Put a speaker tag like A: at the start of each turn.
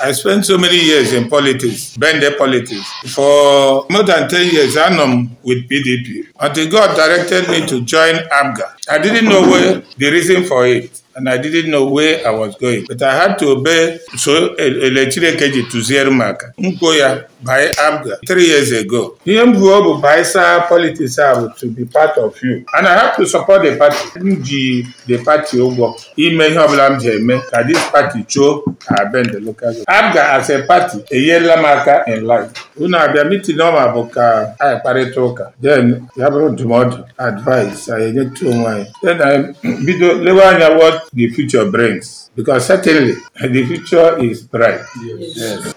A: I spent so many years in politics, Ben Bende politics. For more than 10 years, I'm with PDP. Until God directed me to join Abga. I didn't know where the reason for it. and I didn't know where I was going. But I had to obey so e, Elechirekeji tụziere m aka mkpo ya by ABGA three years ago. Ihe m buo bụ bisaa politics a bụ to be part of you and I have to support the party. M ji the party ụgwọ ime ihe ọbụla m ji eme ka this party chuo abend local ABGA as a party enyerela m aka in life. Unu abịa meeting ọma bụ ka a kparịta ụka then ya bụrụ ndụmọdụ advice anyị enyetu onwe anyị then anyị bido lewe anya wọt the future brings. Because certainly the future is bright.
B: Yes. Yes.